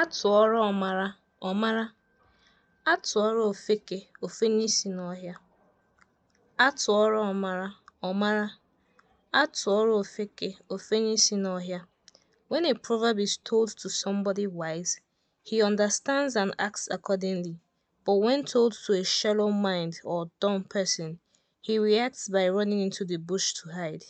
A ọmara ọmara, atụọrọ ofeke, ofenye si n'ọhịa. A ọmara, ọ ofeke, ofe When a proverb is told to somebody wise, he understands and acts accordingly. But when told to a shallow mind or dumb person, he reacts by running into the bush to hide.